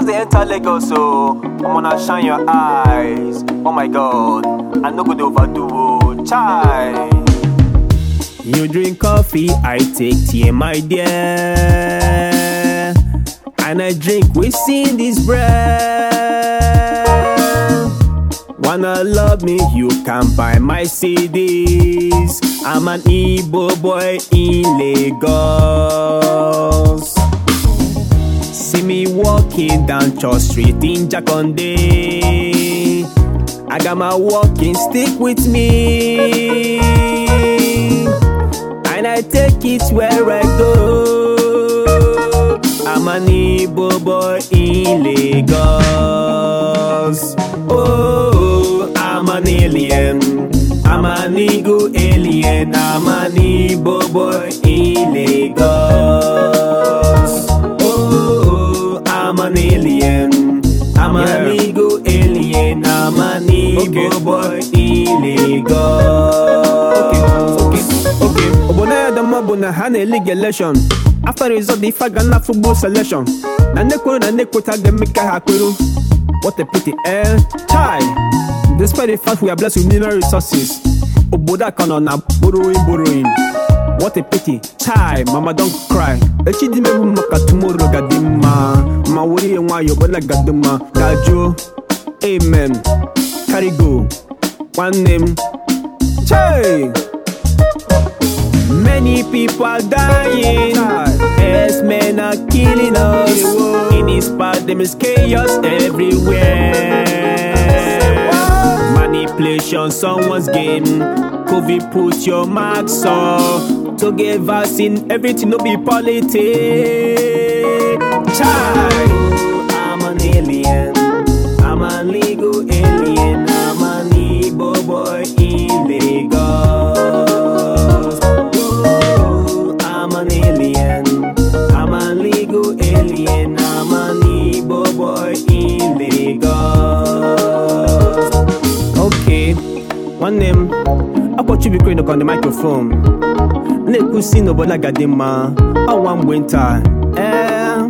just dey enter lagos so I'm gonna shine your eyes oh my god i no go dey overdo o chai. you drink coffee i take tea my dear and i drink within this breath wanna love me you can buy my cds i'm an igbo boy in lagos. walking down Church Street in Jakonde. I got my walking stick with me, and I take it where I go. I'm an Igbo boy in Lagos. Oh, I'm an alien. I'm an Igbo alien. I'm an Igbo boy in boy illegal obonaadama bụ na ha na-elege election after result ife ga na football selection na nnekwuru na nnekwuta ga-eme ka ha kwuru what a pity eh chai despite the fact we are blessed with mineral resources obodo aka nọ na borrowing borrowing what a pity chai mama don cry echi dị mebu maka tomorrow ga dị mma ma were ya nwayọọ ọbụla ga dị mma gajụọ amen Carigo nwanne m Many people are dying. Yes, men are killing us. In this part, there is chaos everywhere. Manipulation, someone's game. COVID, put your mask on. To get vaccine, everything no be politics. Child. nwanne m akpọchi bikere nọkọ na microphone na si n'obodo agadi mma ọnwa mgbe nta ee eh,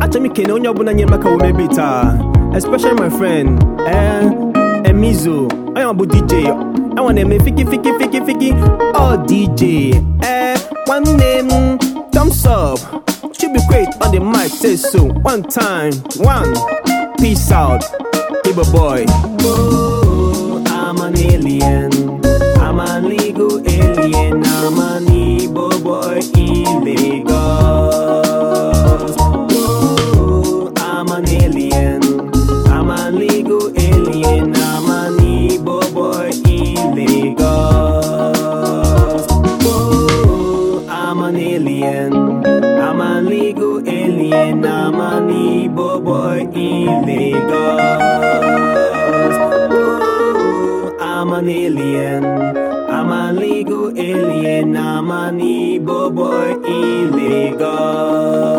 achọrọ m ikene onye ọbụla nyere maka omebe taa especially my friend ee eh, emizo onye ọbụ dj enwa na-eme fiki fiki fiki fiki ọ dj ee eh, nwanne m thumbs up chibikwet on the mic say one time one peace out Ibo boy Whoa. an alien. I'm an legal alien. I'm an Igbo boy in Lagos. I'm an alien. I'm an legal alien. I'm an Igbo boy in Lagos. I'm an alien. I'm an legal alien. I'm an Igbo boy in Lagos. an alien. I'm a legal alien. I'm an boy illegal.